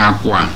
àkwà